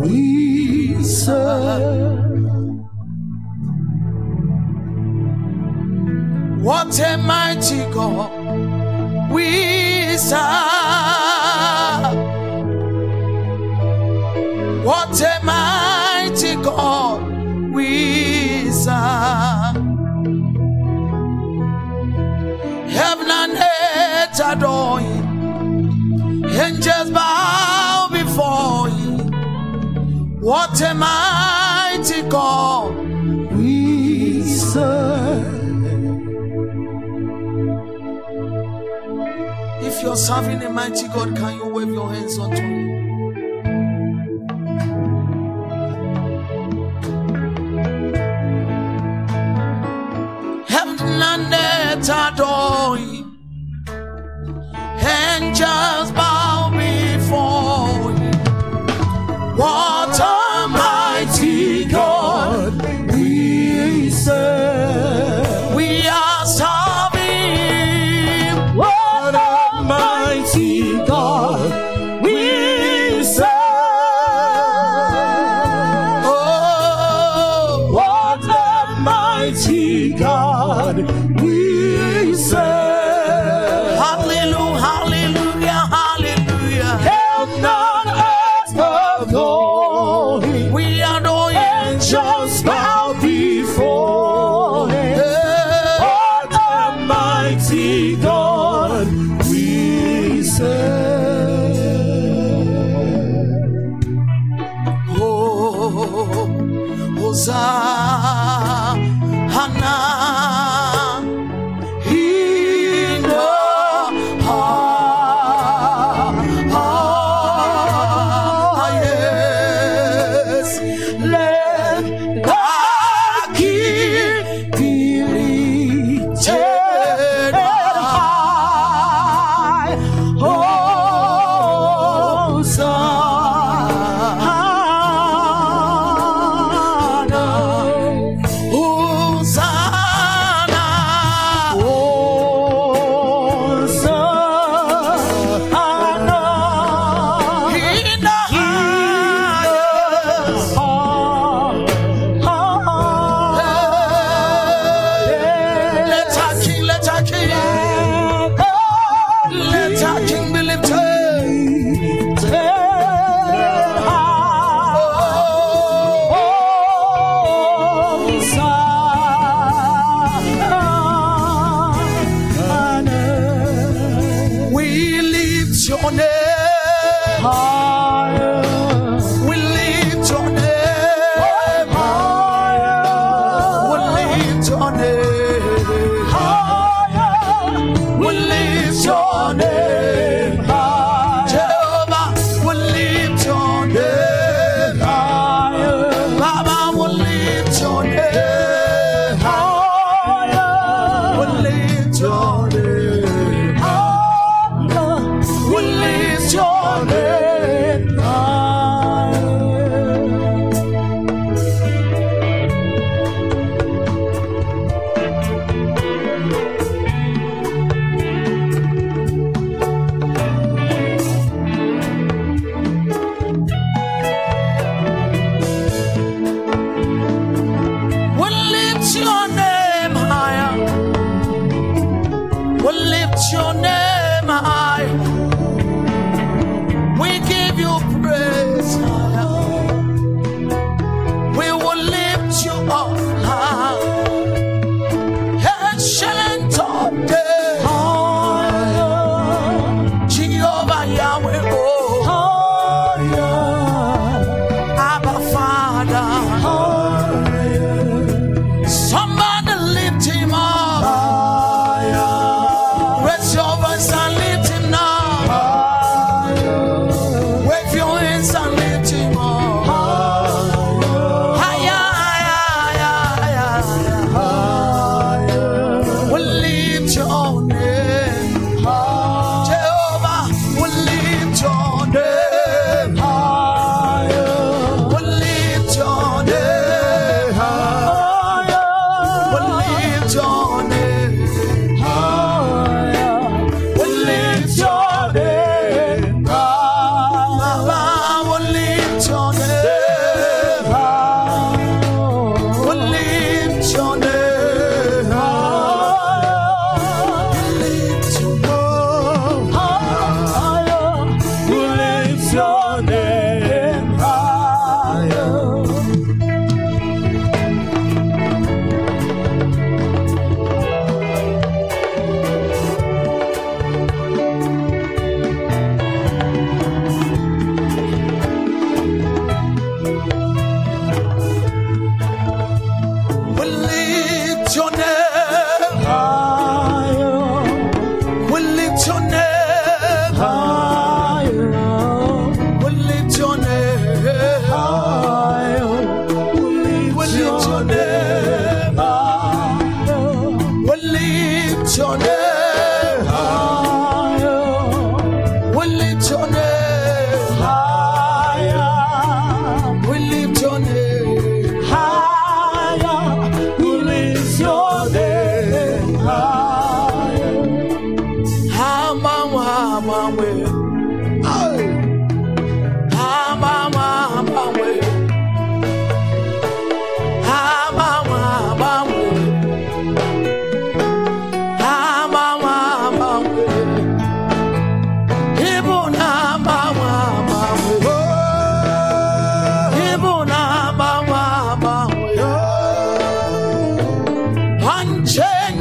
we serve. What a mighty God we serve. What a mighty God we serve. Heaven and earth adore him. Angels bow. What a mighty God we serve. If you're serving a mighty God, can you wave your hands unto me? Heaven and earth adore Him. angels. Almighty God, we say. break.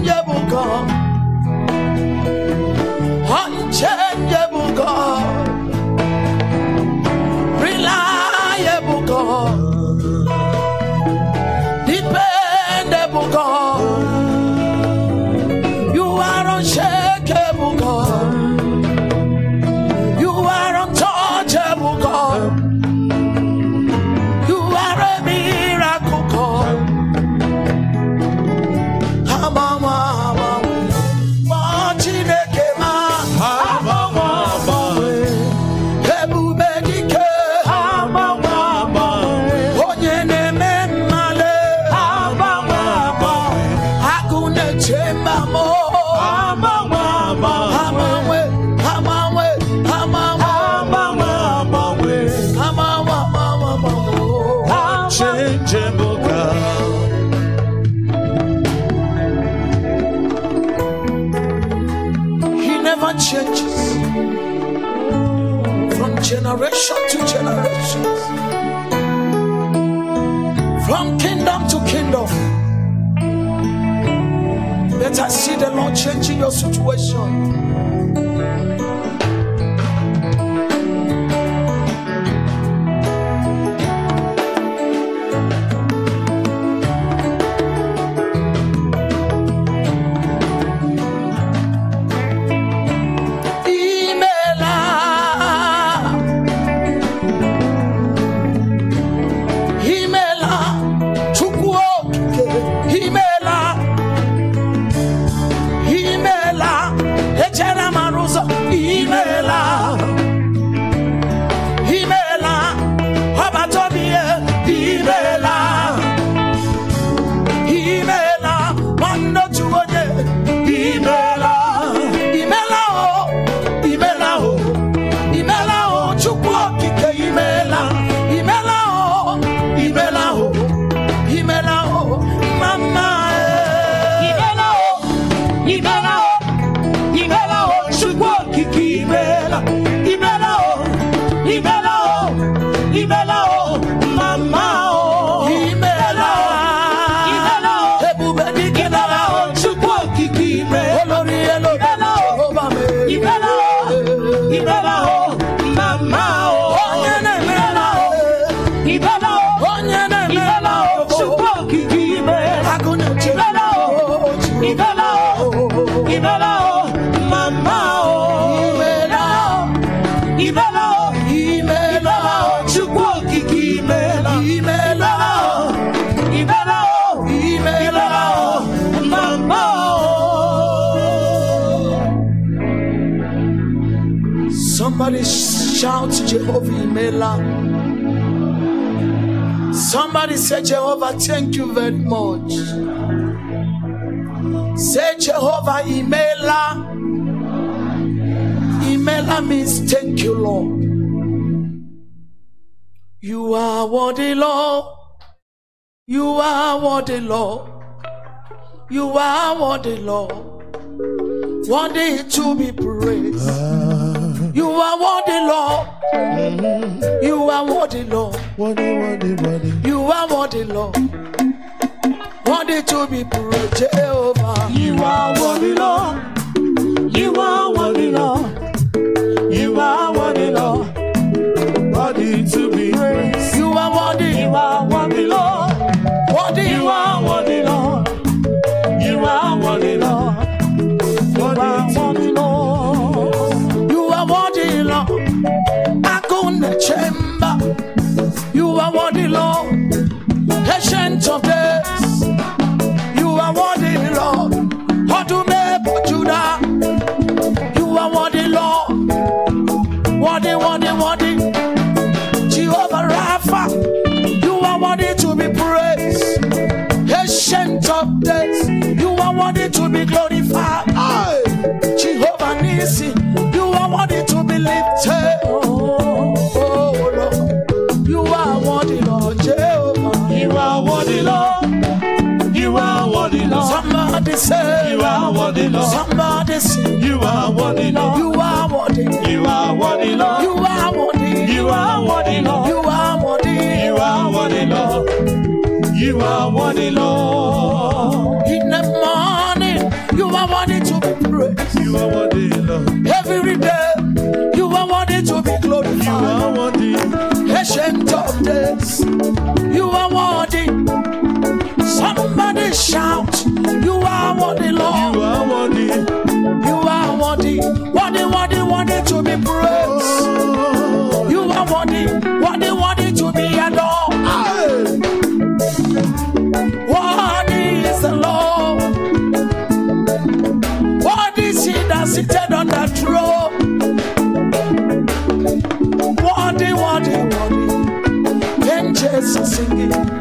I'm Hunter I see the Lord changing your situation. Oh, oh, oh. Somebody shout Jehovah Imela. Somebody say, Jehovah, thank you very much. Say, Jehovah, Imela. Imela means thank you, Lord. You are worthy, Lord. You are worthy, Lord. You are worthy, Lord. Worthy to be praised. You are worthy, Lord. mm You are worthy, Lord. Worthy, worthy, worthy. You are worthy, Lord. Worthy to be praised, Jehovah. You are worthy, Lord. You are worthy, Lord. You are worthy, Lord. Worthy to be praised. You are worthy. You are worthy. to be glorified. Aye. Jehovah Nisi, you are worthy to be lifted. Oh, You are worthy, Lord Jehovah. You are worthy, Lord. You are worthy, Lord. Somebody say, You are worthy, Lord. Somebody say, You are worthy, Lord. You are worthy. You are worthy, Lord. You are worthy. You are worthy, Lord. You are worthy. You are worthy, Lord. You are worthy, Lord are wanting to be praised. You are worthy, Lord. Every day, you are wanting to be glorified. You are worthy. Ancient of days, you are worthy. Somebody shout, you are worthy, Lord. You are worthy. You are worthy. Worthy, worthy, worthy to be praised. singing.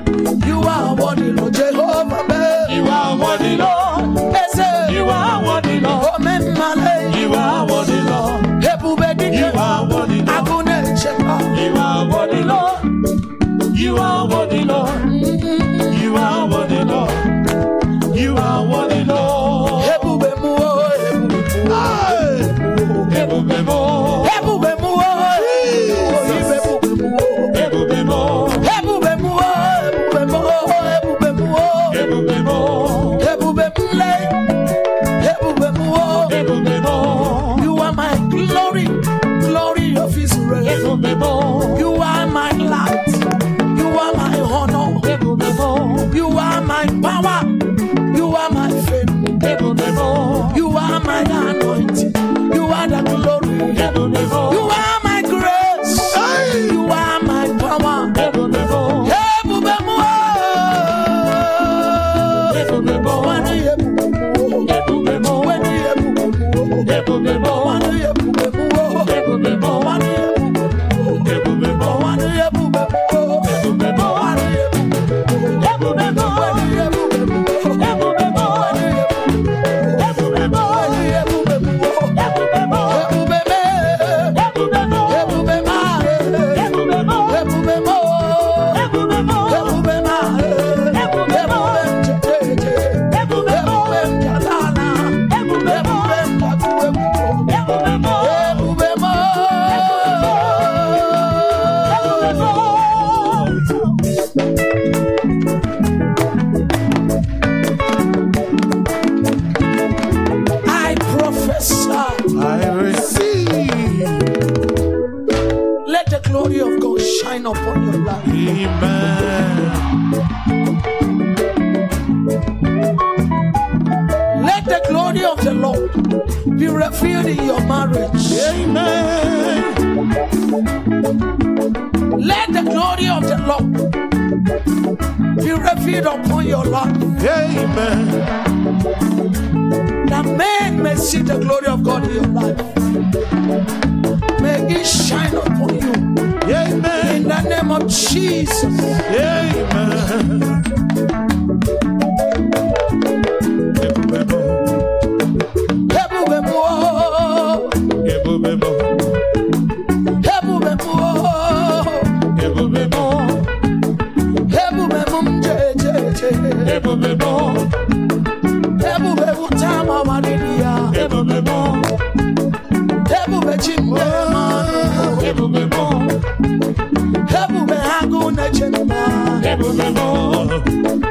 refuge upon your life. Amen. That men may see the glory of God in your life. May it shine upon you. Amen. In the name of Jesus. Amen. Ebube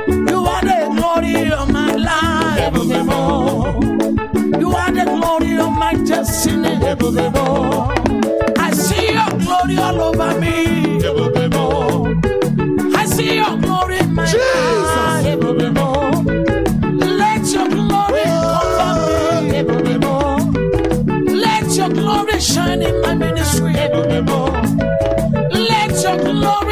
you are the glory of my life you are the glory of my destiny see your glory all over me ebube see your glory in my life Let your glory.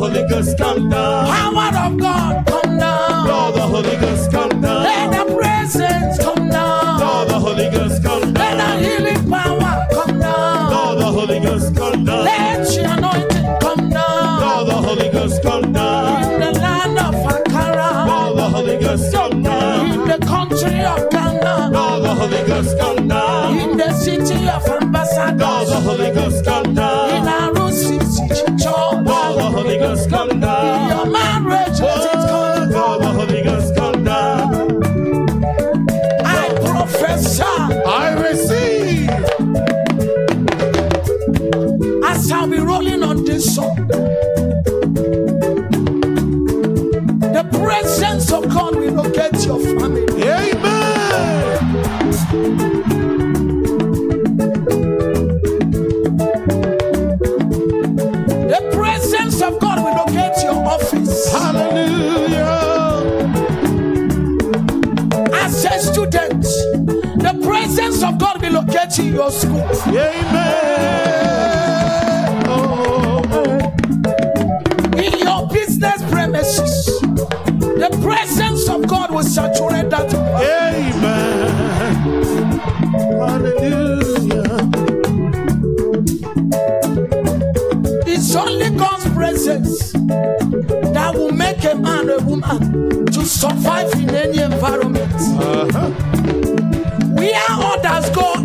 Holy Ghost come down. Power of God come down. Lord, the Holy Ghost come down. Let the presence come down. Lord, the Holy Ghost come down. Let the healing power come down. Lord, the Holy Ghost come down. Let your anointing come down. Lord, the Holy Ghost come down. In the land of Ankara. Lord, the Holy Ghost come down. In the country of Ghana. Lord, the Holy Ghost come down. In the city of Ambassador. Lord, the Holy Ghost come down. In Arusi City Church come down. Your marriage let it come down. come down. I profess, I receive. As I'll be rolling on this song, the presence of God will locate your family. relocate your school. Amen. Oh, oh. In your business premises, the presence of God will saturate that. Amen. Hallelujah. It's only God's presence that will make a man a woman to survive in any environment. Uh -huh. We are others go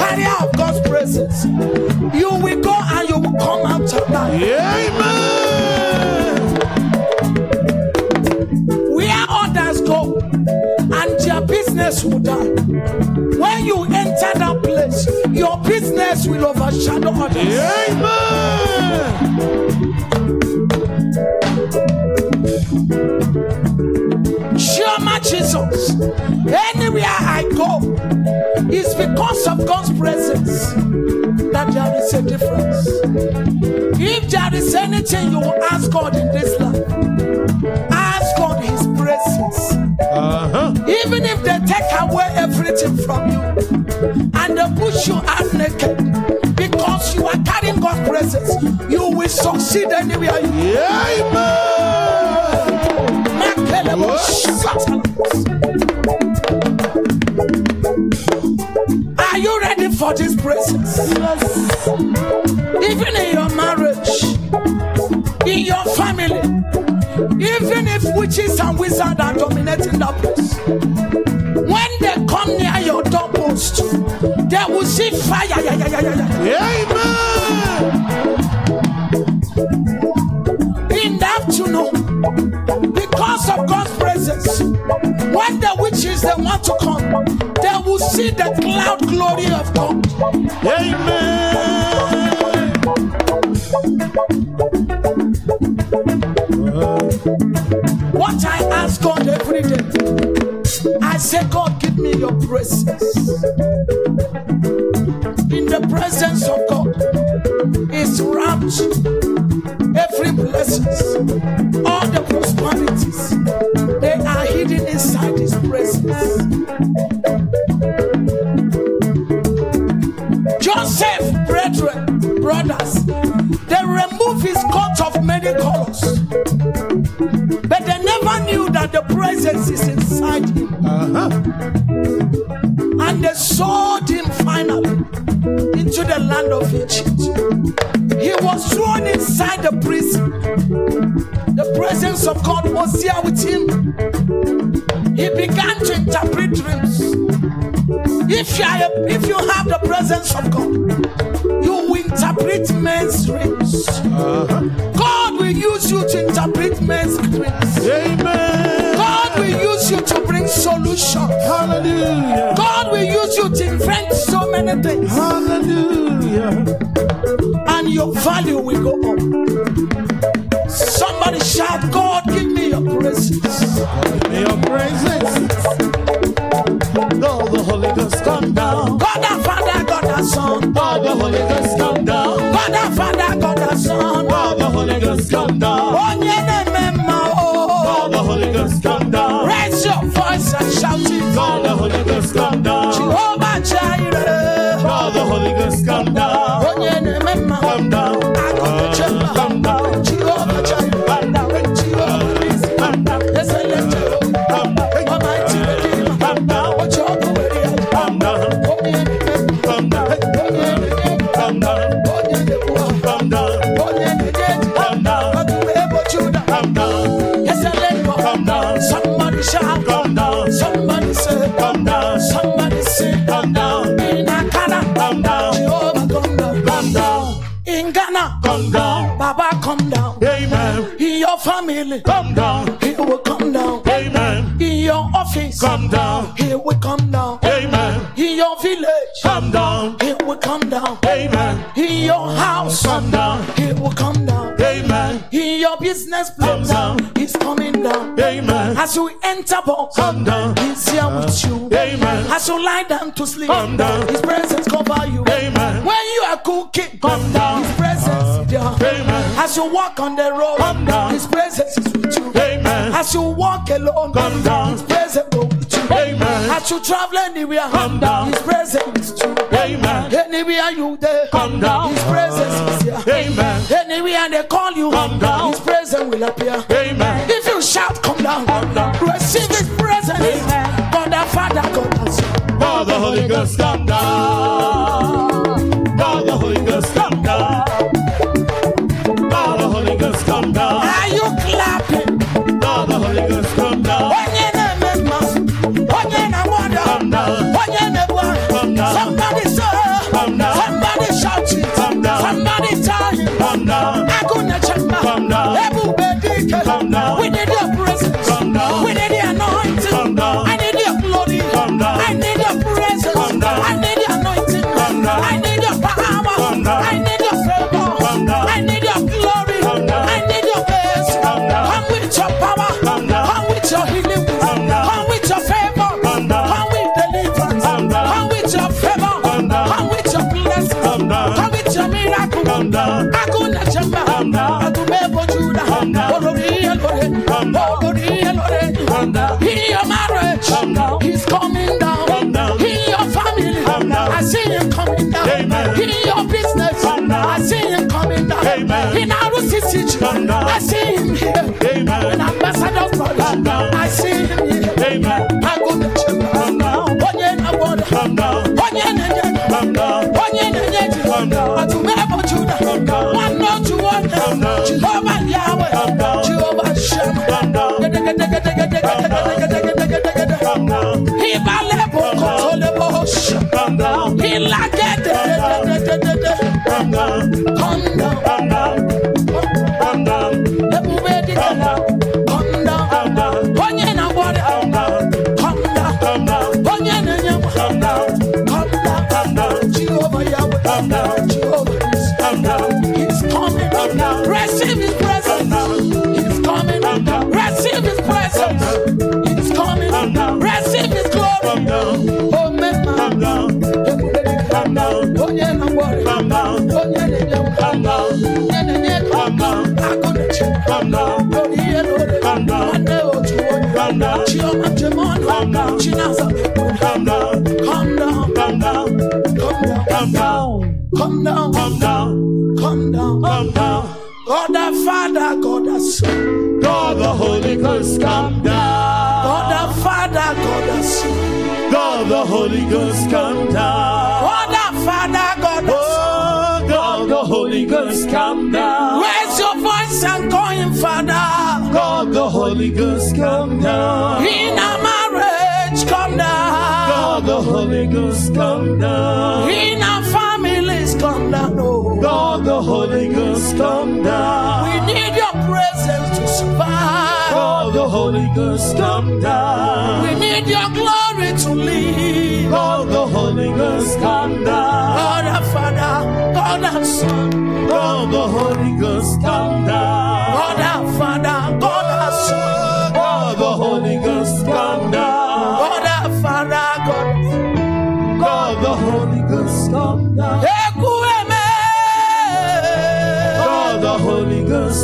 carrier of God's presence. You will go and you will come out alive. Amen. Where others go and their business will die. When you enter that place, your business will overshadow others. Amen. Shema Jesus. go is because of God's presence that there is a difference. If there is anything you will ask God in this life, ask God His presence. Uh-huh. Even if they take away everything from you and they push you out naked because you are carrying God's presence, you will succeed anywhere you go. Yeah, amen. for His presence. Even in your marriage, in your family, even if witches and wizards are dominating that place, when they come near your doorpost, they will see fire. Yeah, yeah, yeah, yeah, yeah. Amen. In the afternoon, because of God's presence, when the witches they want to come see the cloud glory of God. Amen. What I ask God every day, I say, God, give me your presence. In the presence of God it's rapture. is inside him. Uh-huh. And they sold him finally into the land of Egypt. He was thrown inside the prison. The presence of God was here with him. He began to interpret dreams. If you, are, if you have the presence of God, you will interpret men's dreams. Uh-huh. God will use you to interpret men's dreams. Amen solution. Hallelujah. God will use you to invent so many things. Hallelujah. And your value will go up. Somebody shout, God, give me your praises. Give me your praises. Though the Holy Ghost come down. God our Father, God our Son. God the Holy Ghost come down. God our Father, God our Son. God the Holy Ghost come down. really come down. Here we come down. Amen. In your office, come down. Here we come down. Amen. In your village, come down. Here we come down. Amen. In your house, come down. Here we come down. Amen. In your business plan, come down. He's coming down. Amen. As you enter, box, come down. He's here with you. Amen. As you lie down to sleep, come down. His presence cover you. Amen. When you are cooking, come down. Amen. As you walk on the road, come down. His presence is with you. Amen. As you walk alone, come down. His presence will be with you. Amen. As you travel anywhere, come down. His presence is with you. Amen. Anywhere you there, come down. His presence is here. Amen. Anywhere they call you, come down. His presence will appear. Amen. If you shout, come down. Come down. Receive His presence. Amen. God the Father, God the Son, God the Holy Ghost, come down. I see I see him here. Amen. An ambassador for I see him here. Amen. I go to Chanda. Onye na boda. Chanda. Onye na nye. Chanda. Onye na nye. Chanda. Atumebo Juda. Chanda. One not to one. Chanda. Jehovah Yahweh. Chanda. Jehovah Shem. Chanda. Ibale boko tole bosh. Ilage de de de de Come down. Come down. I'm now. coming. Receive His presence. coming. Receive His presence. coming. Receive His glory. man. Oh, Oh, Oh, Come down, come down, come down, come down. God the Father, God the Son, God the Holy Ghost, come down. God the Father, God the Son, God the Holy Ghost, come down. God the Father, God the Son, God the Holy Ghost, come down. Raise your voice and call Him Father. God the Holy Ghost, come down. In our marriage, come down. God the Holy Ghost, come down. In our come down, oh God, the Holy Ghost come down. We need your presence to survive. God, the Holy Ghost come down. We need your glory to live. God, the Holy Ghost come down. God our Father, God our Son. God, the Holy Ghost come down. God our Father, God our Son. God, the Holy Ghost come down. God Father, God. the Holy Ghost come down.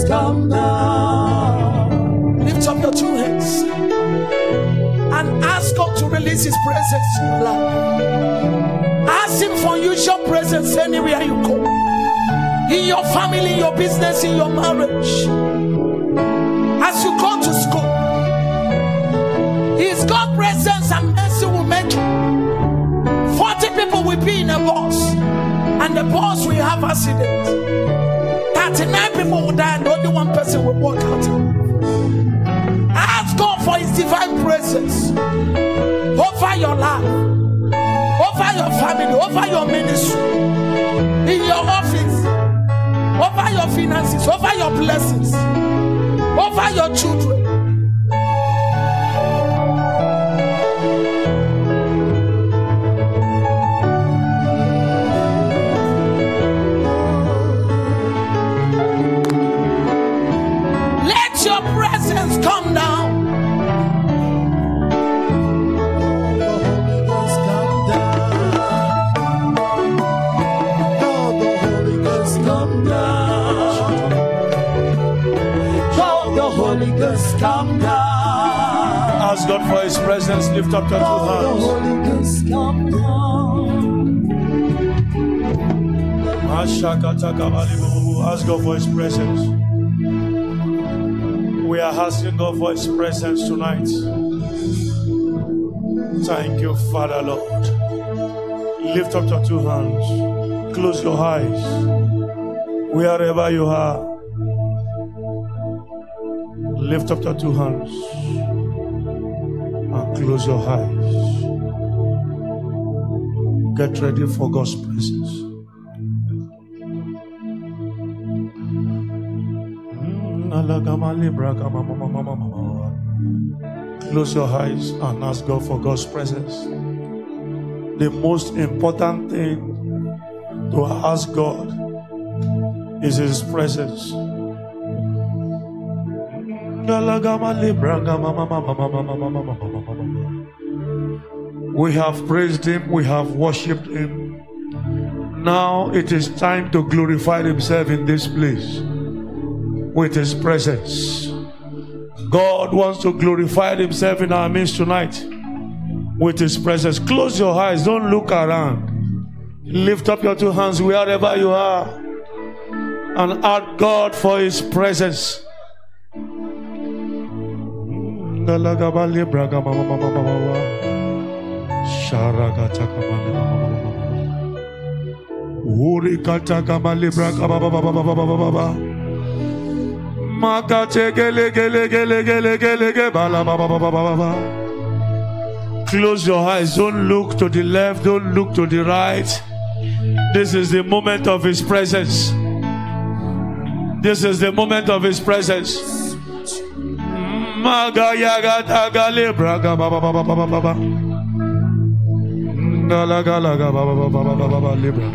come down. Lift up your two hands and ask God to release His presence in your life. Ask Him for usual presence anywhere you go in your family, in your business, in your marriage. As you go to school, His God presence and mercy will make you. 40 people will be in a bus, and the bus will have accidents. 39 people will die only one person will walk out. Ask God for His divine presence over your life, over your family, over your ministry, in your office, over your finances, over your blessings, over your children. presence, lift up your two hands. Ask God for His presence. We are asking God for His presence tonight. Thank you, Father Lord. Lift up your two hands. Close your eyes. Wherever you are, lift up your two hands. Close your eyes. Get ready for God's presence. Mm, Close your eyes and ask God for God's presence. The most important thing to ask God is His presence. We have praised him, we have worshipped him. Now it is time to glorify himself in this place with his presence. God wants to glorify himself in our midst tonight with his presence. Close your eyes, don't look around. Lift up your two hands wherever you are and ask God for his presence. Mandala Gabali Braga Mama Mama Mama Makache Gele Gele Gele Gele Gele Close your eyes, don't look to the left, don't look to the right. This is the moment of His presence. This is the moment of His presence. Maga yagata gale braga baba baba baba baba. Gala gala baba baba baba baba libra.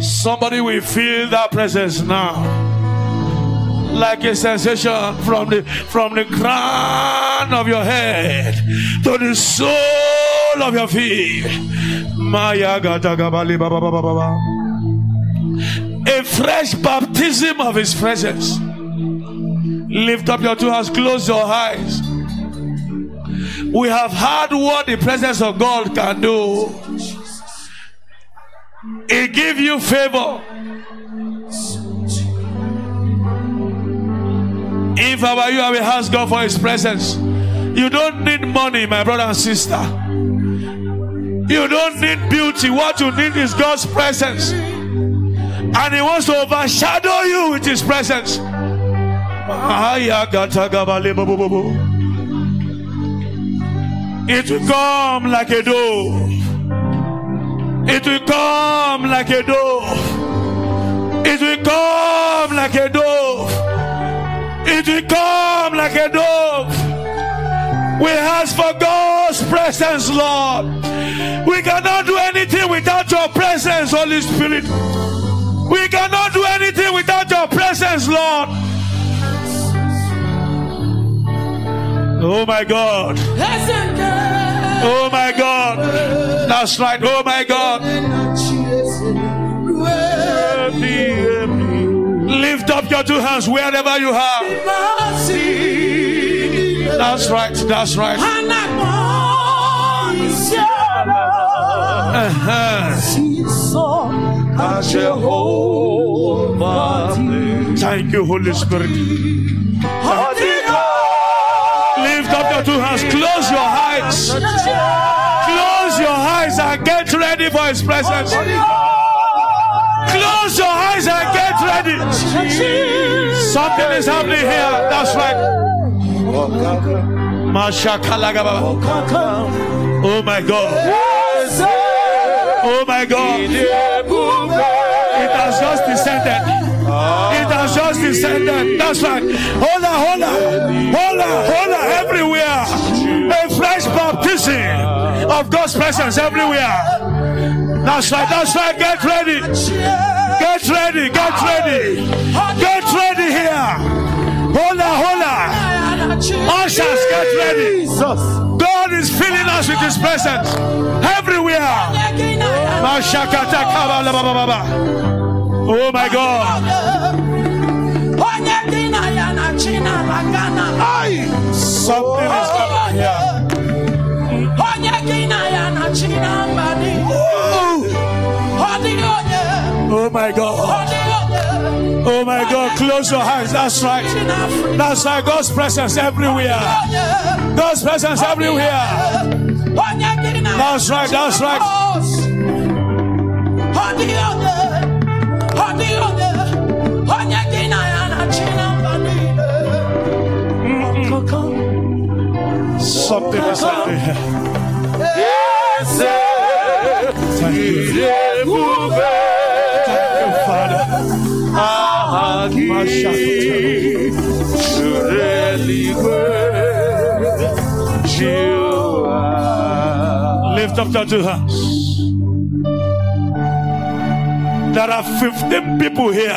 Somebody will feel that presence now. Like a sensation from the from the crown of your head to the sole of your feet. Maya gata gabali baba baba baba. A fresh baptism of his presence. Lift up your two hands, close your eyes. We have heard what the presence of God can do. It give you favor. If I were you, I will ask God for His presence. You don't need money, my brother and sister. You don't need beauty. What you need is God's presence. And He wants to overshadow you with His presence. It will come like a dove. It will come like a dove. It will come like a dove. It will come like a dove. We ask for God's presence, Lord. We cannot do anything without your presence, Holy Spirit. We cannot do anything without your presence, Lord. Oh my God. Oh my God. That's right. Oh my God. Lift up your two hands wherever you are. That's right. That's right. Uh-huh. Thank you, Holy Spirit to has Close your eyes. Close your eyes and get ready for His presence. Close your eyes and get ready. Something is happening here. That's right. Oh my God. Oh my God. It has just descended just descended. That's right. Hola, hola, hola, hola, everywhere. A fresh baptism of God's presence everywhere. That's right, that's right. Get ready. Get ready, get ready. Get ready here. Hola, hola. Ushers, get ready. God is filling us with His presence everywhere. Oh my God. something is here. Oh my God. Oh my God, close your hands. That's right. That's right. God's presence everywhere. God's presence everywhere. That's right. That's right. Something is happening. Yes, Thank you. Father. Lift up that two hands. There are 15 people here.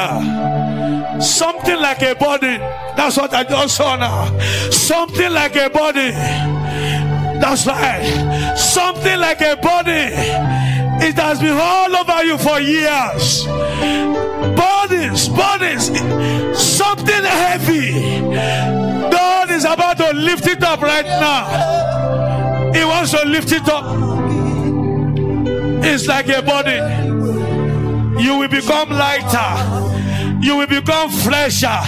Something like a body. That's what I just saw now. Something like a body. That's right. Something like a body. It has been all over you for years. Bodies, bodies. Something heavy. God is about to lift it up right now. He wants to lift it up. It's like a body. You will become lighter. You will become fresher.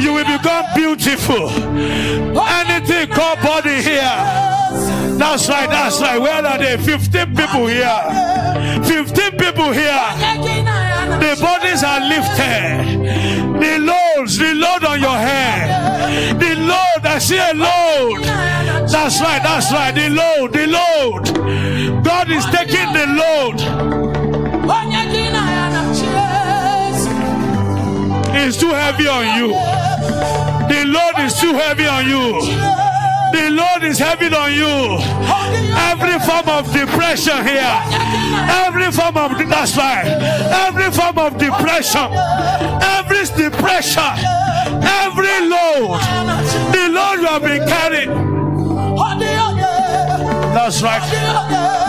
You will become beautiful. Anything called body here. That's right, that's right. Where are they? 15 people here. 15 people here. The bodies are lifted. The loads, the load on your head. The load, I see a load. That's right, that's right. The load, the load. God is taking the load. is too heavy on you. The Lord is too heavy on you. The Lord is heavy on you. Every form of depression here. Every form of that's right. Every form of depression. Every depression. Every load. The Lord will be carried. carrying. That's right.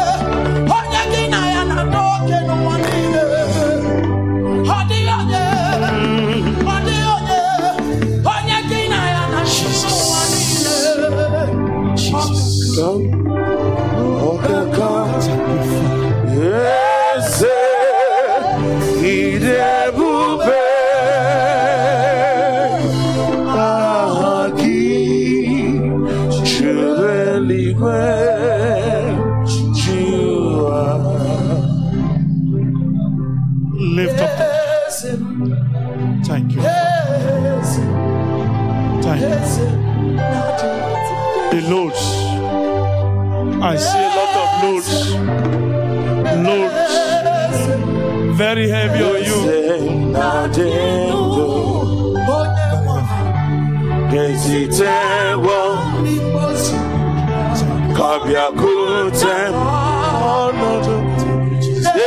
sitewo kabiakwute ọnọdụ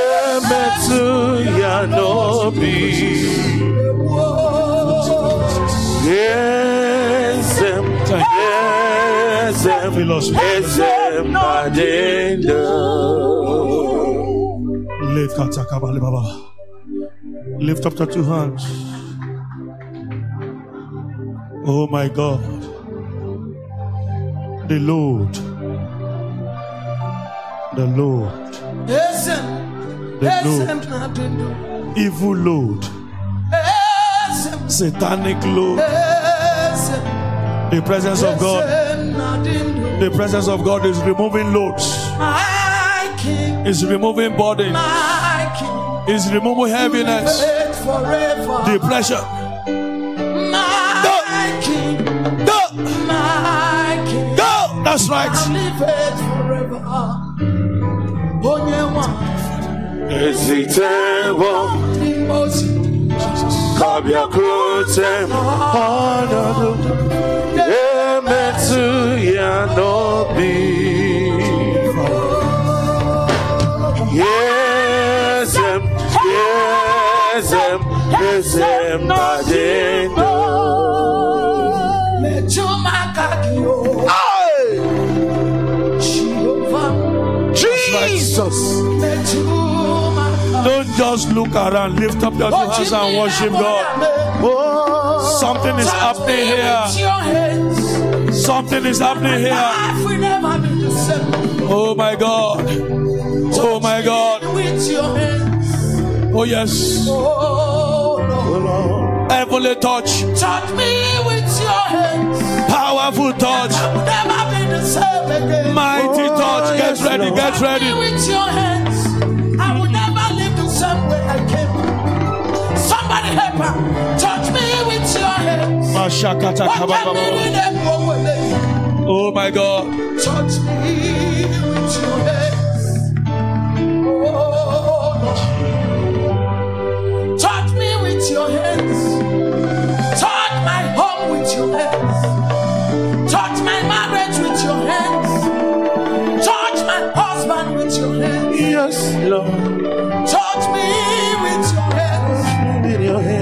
emetụ ya n'obi eze m eze m eze Lift up your two hands. Oh my God. The Lord. The Lord. The Lord. Evil Lord. Satanic Lord. The presence of God. The presence of God is removing loads. Is removing bodies. Is removing heaviness. Depression That's right. kabia krotem hanadu emetu yanobi yesem Jesus. Don't just look around, lift up your two hands and worship God. Something is happening here. Something is happening here. Oh my God. Oh my God. Oh yes. Heavenly touch. Touch me with Powerful touch. Mighty touch. Get ready, get ready. With your hands, I will never leave the same way I came. Somebody help her. Touch me with your hands. Oh my God. Touch me. Yes, Lord. Touch me with your hands. your hands.